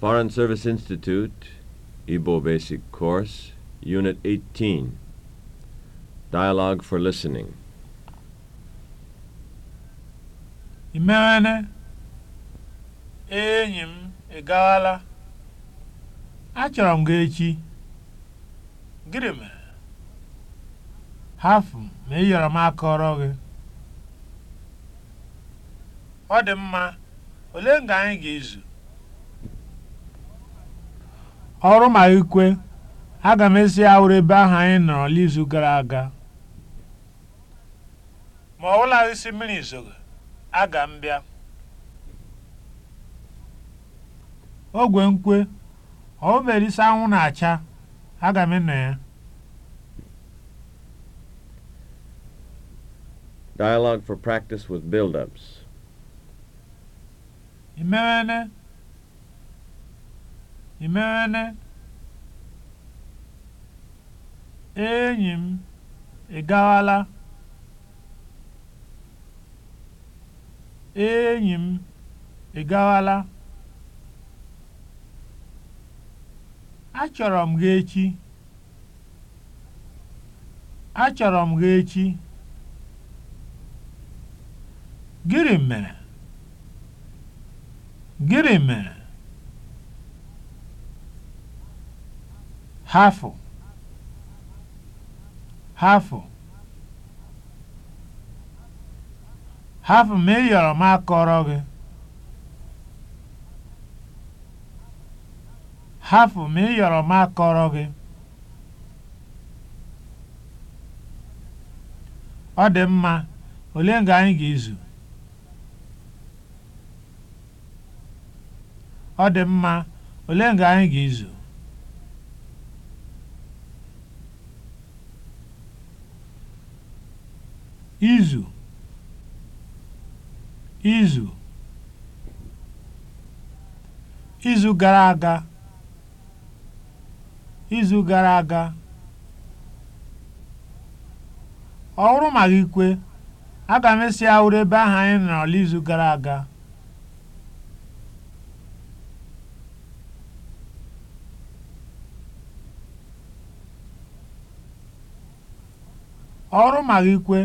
Foreign Service Institute, Igbo Basic Course, Unit 18. Dialogue for Listening. Imene, enyi m ịgawala. Achọrọ m gị echi. Gịnị m Hafụ ma ị yọrọ m ọrọ gị. Ọ dị mma, ole nga anyị ga-ezu? ọrụ ma ikwe aga m esi awụrụ ebe ahụ anyị nọrọ n'izu gara aga ma ọ bụla isi mmiri zoro aga m bịa ogwe nkwe ọ bụbere isi anwụ na-acha aga m ịnọ ya Dialogue for practice with build-ups. Imeene, enyi m, ị gaala? Enyi m, ị Achọrọ m gị echi. Achọrọ m gị echi. gịrị mere? gịrị mere? hafụ hafụ hafụ ma ị yọrọ m akọrọ gị ma ị yọrọ ma akọrọ gị ọ dị mma ole nga anyị ga-ezu ga-ezu izu izu izu gara aga izu gara aga ọ wụrụ ma gị kwe aga m esi awụrụ ebe ahụ anyị nọrọ n'izu gara aga ọrụ ma gị kwe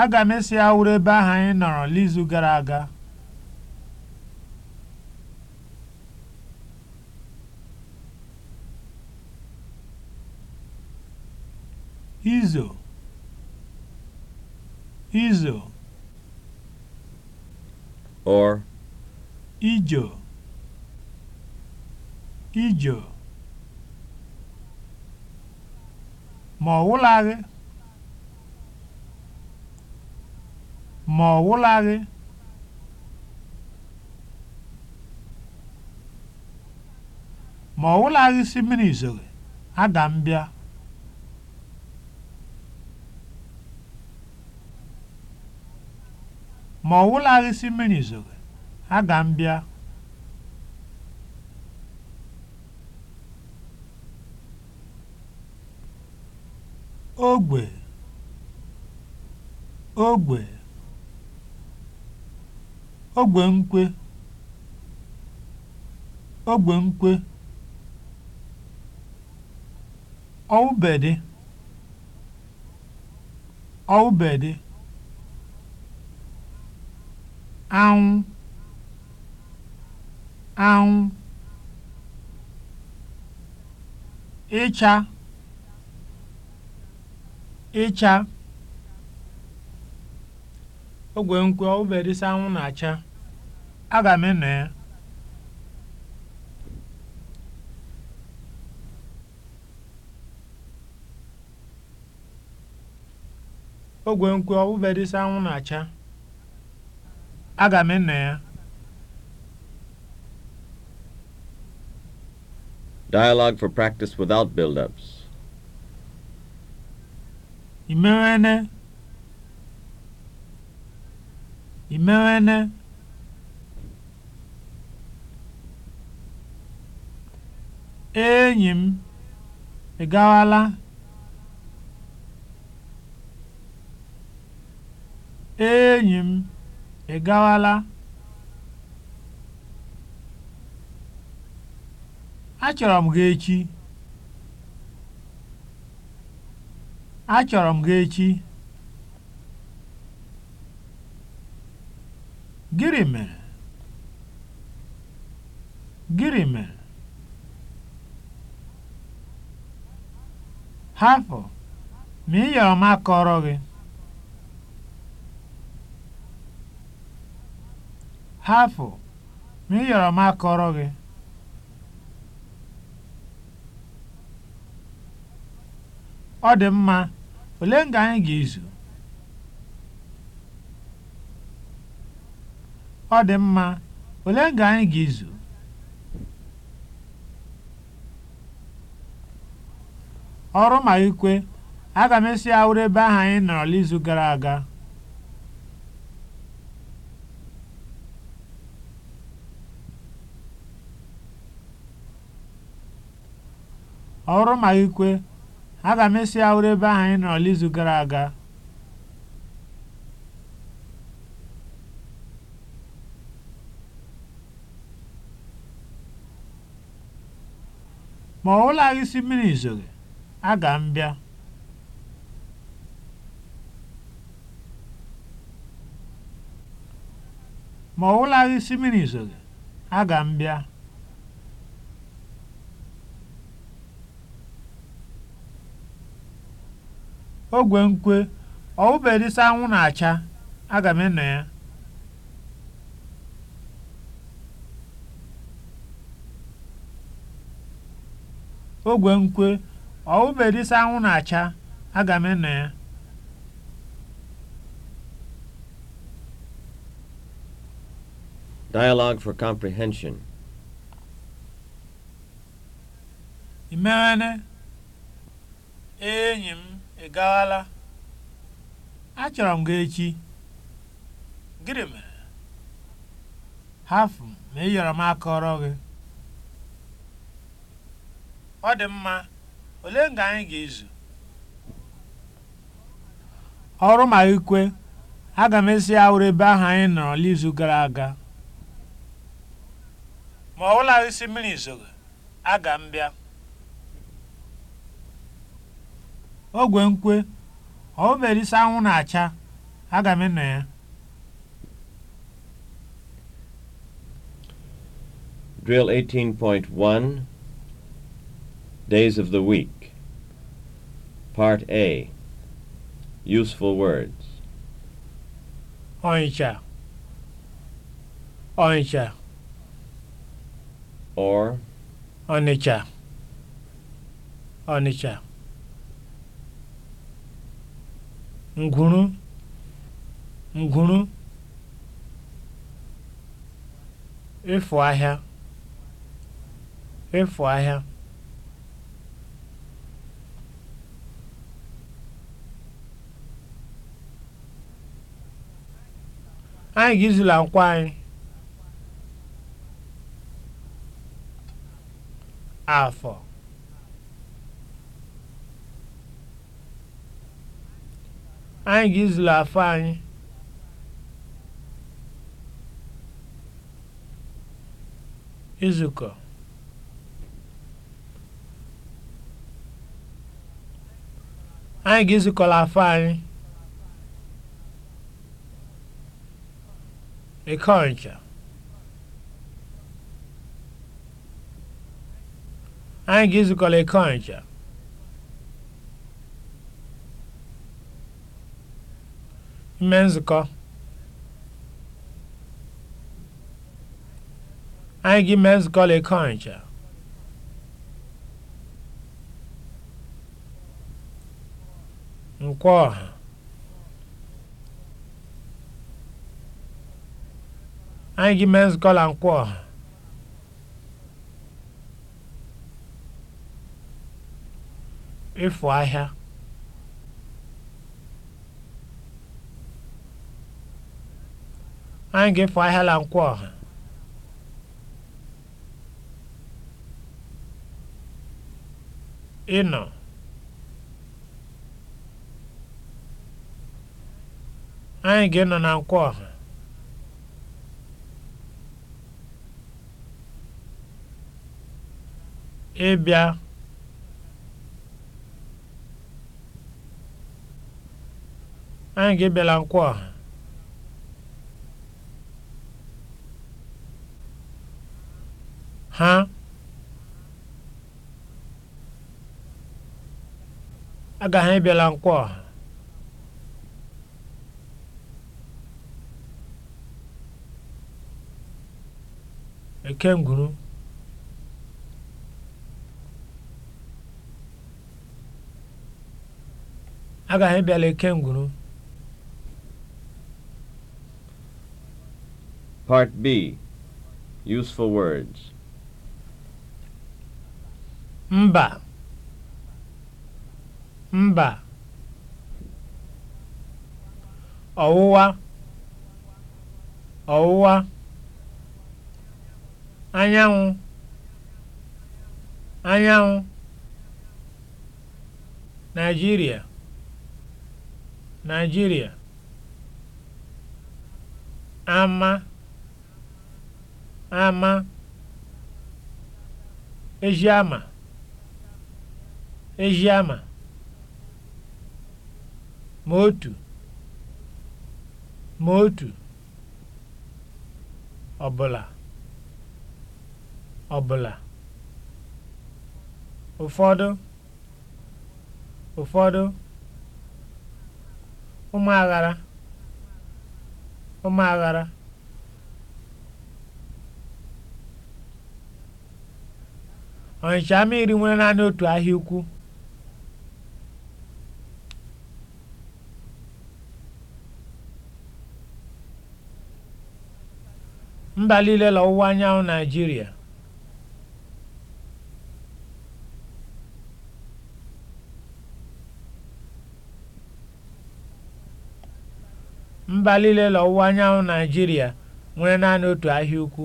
aga m esi awụrụ ebe ahụ anyị nọrọ n'izu gara aga izo izo or ijo ijo ma ọ wụlaghị ma ọ gwụlaghị ma ọ gwụlaghị si mmiri izogbe ada m bịa ma ọ si mmiri aga m bịa ogbe ogbe ogbe nkwe, ọwụbèdị anwụ anwụ ịcha ịcha ogwènkwe obedịsa anwụ na-acha aga m eno ya ogwènkwe obedịsa anwụ na-acha aga m eno ya Dialogue for practice without build-ups. Imewene imewene enyi m ị gawala enyi m ị gawala achọrọ m gị echi achọrọ m gị echi hapụ ma ị yọrọ m akọrọ gị hapụ ma ị yọrọ m akọrọ gị ọ dị mma ole nga anyị ga-ezu ọ dị mma ole nga anyị ga-ezu ọrụ ma ikwe aga m esi awụrụ ebe ahụ anyị gara aga ma m esi awụrụ ebe ahụ anyị nọrọ n'izu gara aga ma ọ wụlaghị isi mmiri izoghị Aga m bịa ma ọ wụlaghị mmiri zowe, aga m bịa. Ogwe nkwe ọ wụbedịsị anwụ na-acha, aga m ịnọ ya. Ogwe nkwe ọwụberisi anwụ na-acha aga m eno ya Dialogue for comprehension. Imene enyi m gawala achọrọ m gị echi gịnị mere hafụ ma ị yọrọ m akọrọ gị ọ dị mma Olee nga anyị ga-ezu? Ọrụ ma ikwe, aga m esi awụrụ ebe ahụ anyị nọrọ n'izu gara aga. Ma ọ bụla isi mmiri zoro aga m bịa. Ogwe nkwe, ọ bụbere isi anwụ na-acha, aga m ịnọ ya. Drill 18.1 Days of the Week. Part A Useful Words. Ancak. Ancak. Or. onicha onicha nguru: nguru: Ịfụ ahịa. Ịfụ ahịa. Anyị ga-ezula nkwụ anyị afọ anyị ga-ezula afọ anyị izukọ anyị ga-ezukọla afọ anyị Ekọja. Anyị ga-ezukọla Ime nzukọ. Anyị ga-eme Nkwọ ọha. Anyị gị men's gọla and ọha. Ịfụ ahịa. Anyị gị ịfụ ahịa la nkwọ ọha. Ịnọ. Anyị gị ịnọ na nkwọ ọha. ịbịa anyị ga nkwụ a ha agaghị nkwụ a Ekengwuru agaghị bịala ngụrụ. part b useful words mba mba ọwụwa ọwụwa anyanwụ anyanwụ Nigeria Nigeria, ama ama Ejiama Ejiama Motu, Motu, ọbụla ọbụla ụfọdụ ụfọdụ ụmụaghara aghara Ọnịcha ama iri nwere naanị otu ahịa ukwu mba niile ọwụwa anyanwụ naijiria mba niile n'ọwụwa anyanwụ Naijiria nwere naanị otu ahịa ukwu.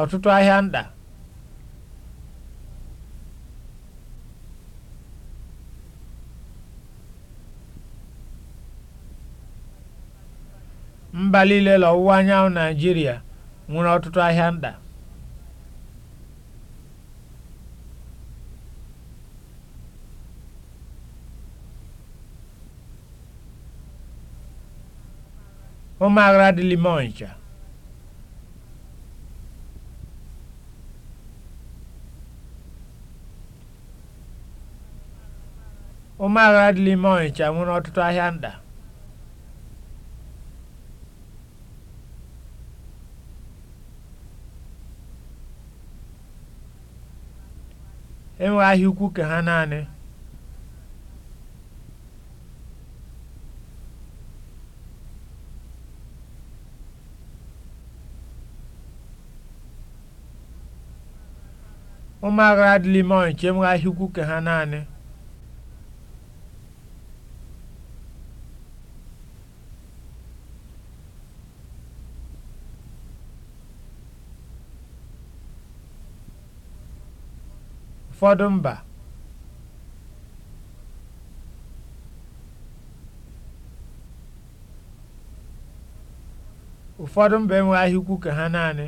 ọtụtụ ahịa nta mba niile n'ọwụwa anyanwụ Naijiria nwere ọtụtụ ahịa nta Ụmụaghara dị l'ime Ọnịcha. Ụmụaghara dị nwere ọtụtụ ahịa nta. E ahịa ukwu ka ha naanị. Ụmụagha adịghị ime ọnụ chee m ha naanị. Ụfọdụ mba ụfọdụ mba enweghị ahịa ukwu ha naanị.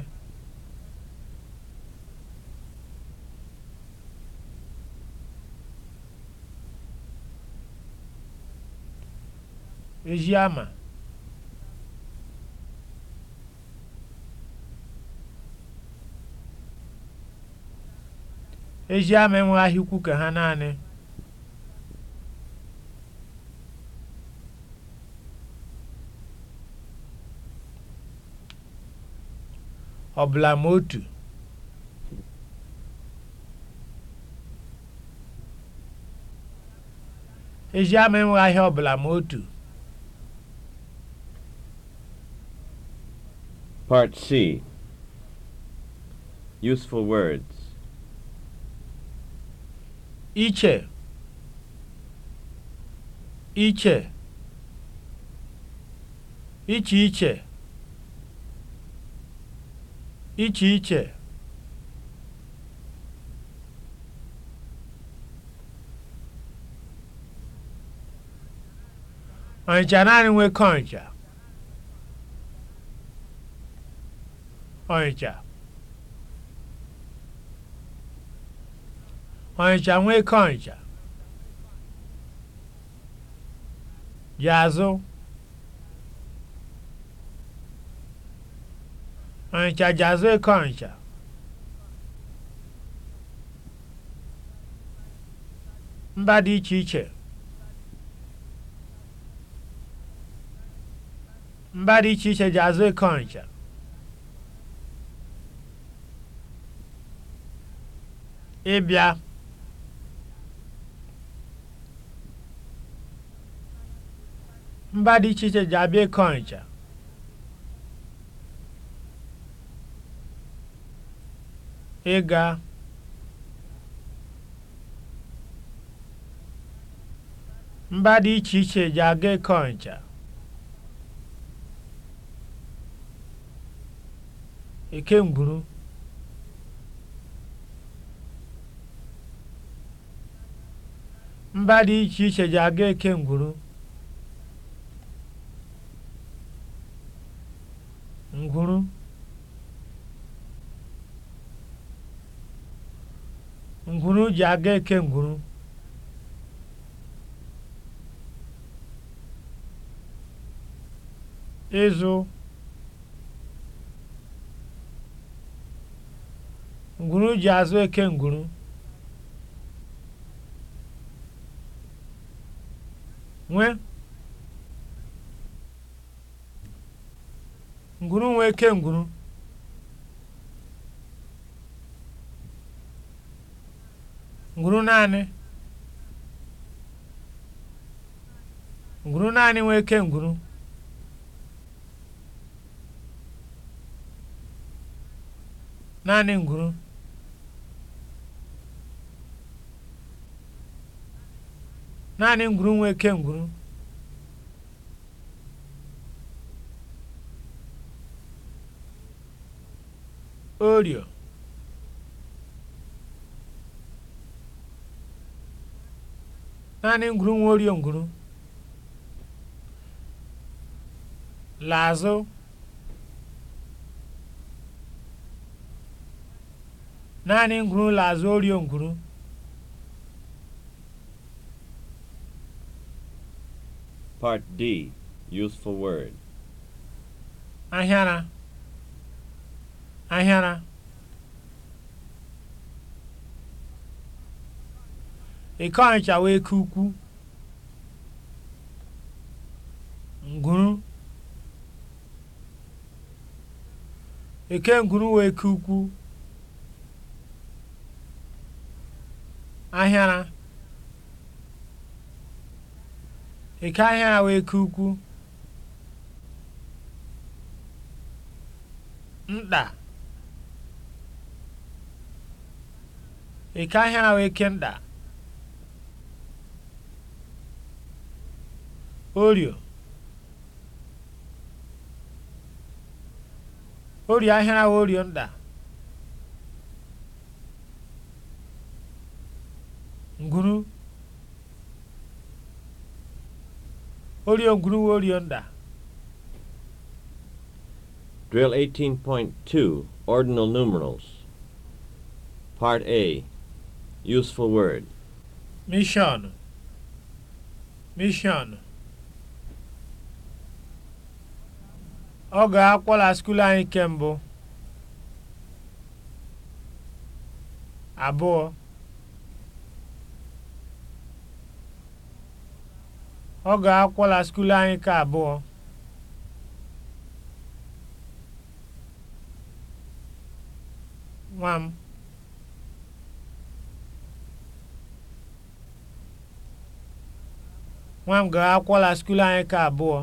Ejiama Ejiama enweghị ahịa ka ha naanị ọbụla ma otu ama ahịa ọbụla ma otu Part C Useful words Iche Iche Iche iche Iche iche iche naanị nwe Ọnịcha ọnịcha ọnịcha nwoke ọnịcha jazụ ọnịcha jazụ eke mba dị iche iche mba dị iche iche jazụ ịbịa mba dị iche iche ji abịa ịkọ ncha ịga mba dị iche iche ji aga ịkọ ncha ekemgburu mba dị iche iche ji aga eke ngwuru ngwuru ngwuru ji aga eke ngwuru ịzụ ngwuru ji azụ eke ngwuru nwe ngwuru nwe ike ngwuru ngwuru naanị ngwuru naanị nwe ike ngwuru naanị ngwuru naanị ngwuru nwa eke ngwuru orịọ naanị ngwuru nwa orịọ ngwuru lazụ naanị ngwuru lazụ orịọ ngwuru Part D Useful Word Ahịara Ahịara Iko Ọnịcha wee ke ukwu ngwuru Eke ngwuru wee ke ukwu Ahịara Ị gaghị ahụ eke ukwu, nta. Ị gaghị ahụ eke nta. Orio. Orio ahịa ahụ orio nta. Nguru. Orion Guru Orion Da. Drill 18.2 Ordinal Numerals. Part A Useful Word. Mission. Mission. Ọ ga-akwọla anyị kemgbe abụọ Ọ ga akwọla skuulu anyị ka abụọ. Nwa m. Nwa m ga skuulu anyị nke abụọ.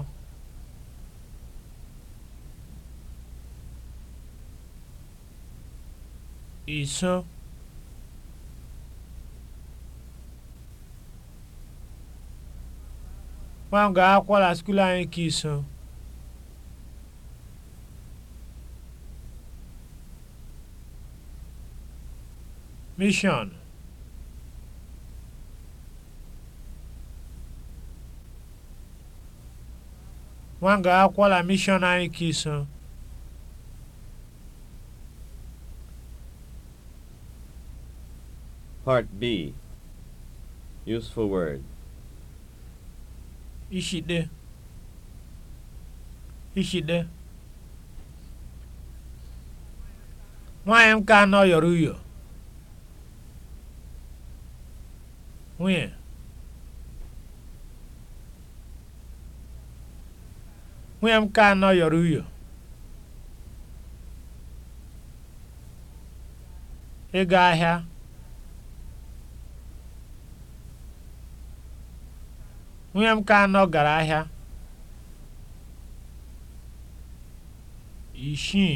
Iso. nwa m ga-akwụkwọ na skuul anyị ka iso mishọn nwa ga-akwụkwọ anyị Part B Useful word ishide ishide nwanyị m ka anọ yọrọ uyo nwunye nwunye m ka anọ yọrọ uyo ịga ahịa Nwunye m nke anọ gara ahịa. isii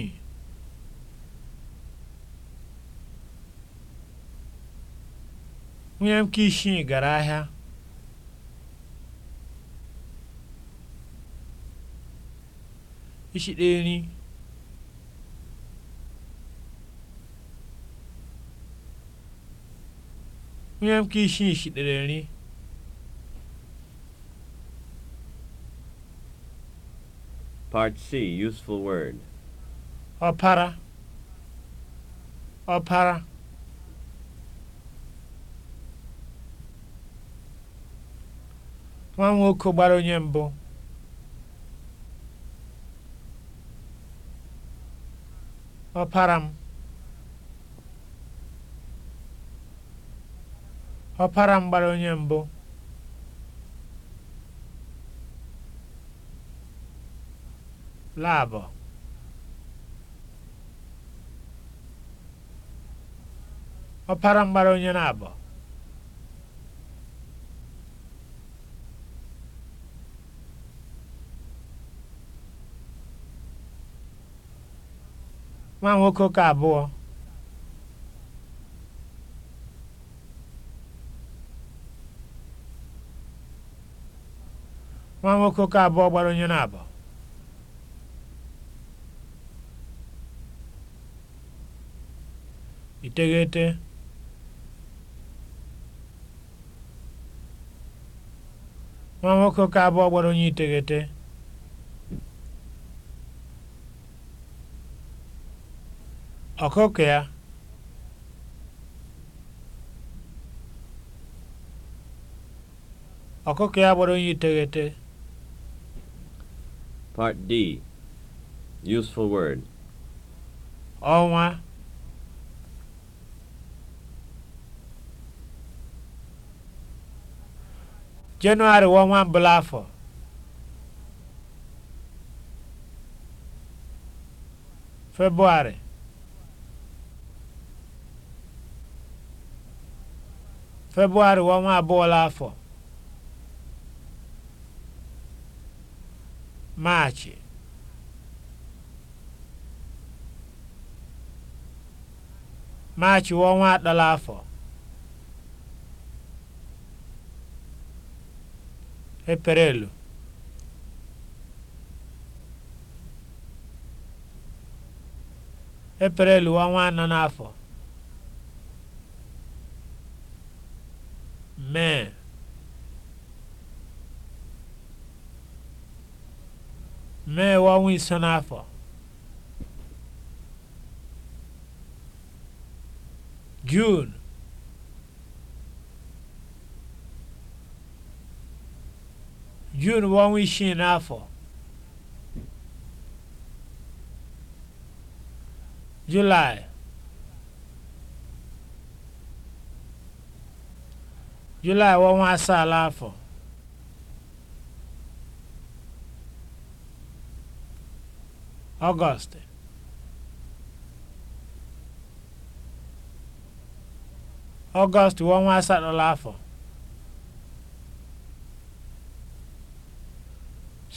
nwunye m ka isii gara ahịa ishirini nwunye m nke isii shitere nri Part C, useful word. Ọpara. Ọpara. Nwa nwoke gbara onye mbụ. Ọpara m. Ọpara m gbara onye mbụ. labọ̀ ọpara mgbara onye na-abọ nwoke ụka abụọ Ma nwoke ụka abụọ gbara onye na-abọ ìteghete nwa nwoke oke abụọ gbara onye iteghete ọkụkọ ya ọkụkọ ya gbara onye iteghete Part D Useful word ọnwa Jenụwarị bụ ọnwa mbụla afọ. Febụwarị. Febụwarị bụ ọnwa abụọla afọ. Maachị. Maachị bụ ọnwa atọla afọ. Eprelụ Eperelu ọnwa anọ n'afọ. Mee. Mee iso n'afọ. June. June bụ she isii n'afọ July July bụ ọnwa asaa August August bụ ọnwa asatọ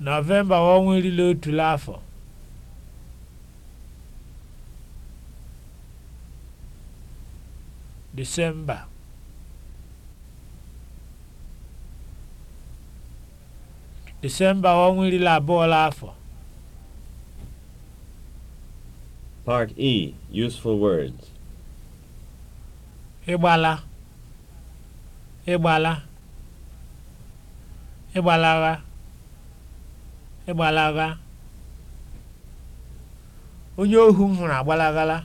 Nọvemba ọnwa iri na otu afọ Disemba Disemba ọnwa iri na abụọ afọ Part E Useful Words Ịgbala e Ịgbala e Ịgbalawa e ịgbalaga onye ohu m hụrụ agbalagala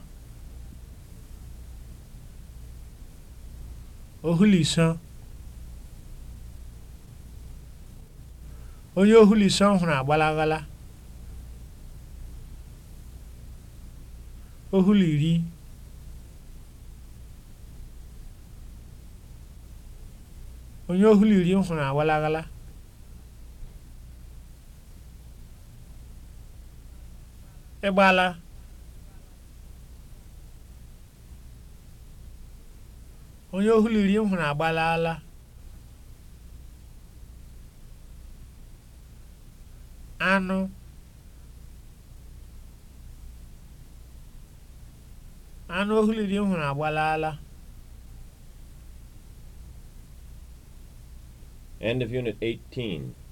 ohuliso onye ohuliso m hụrụ agbalagala ohuliri onye ohuliri m hụrụ agbalagala ịgbala onye ohuliri m hụrụ agbalala anụ anụ ohu m hụrụ agbalala End of Unit 18.